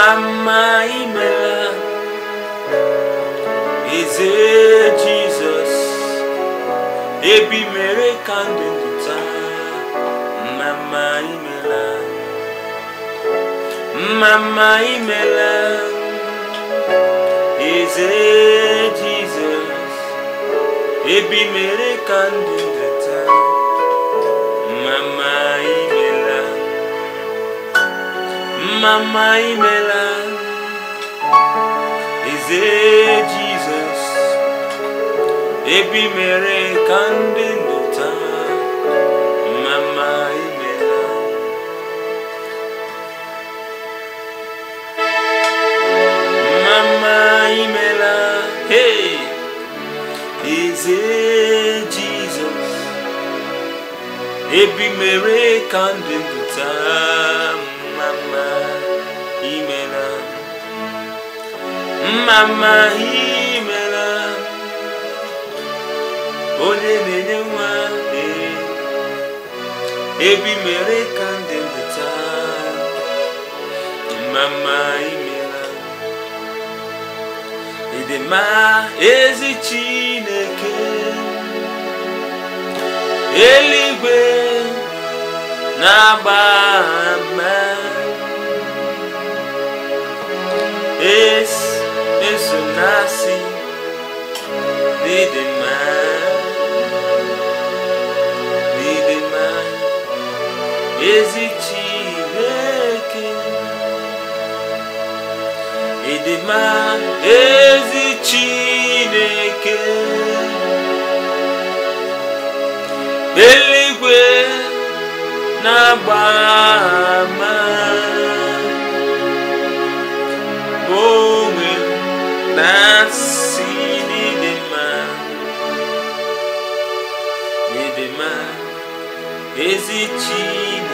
mama imela eze Jesus ebi mere ka ndụ pụta mama imela mama imela eze jizọs ebi mere ka mama imela Eze Jesus Ebi mere kande nota Mama imela Mama imela Hey Eze Jesus Ebi mere kande nota mma imela mma imela onye na-enye nwa ebi mere ka ndị ndị taa mma imela ịdị ezi Chineke eluigwe na-agba mma na-asị n'ịdị mma n'ịdị mma ezi Chineke eluigwe na-agba Nasci de demais, de demais, existe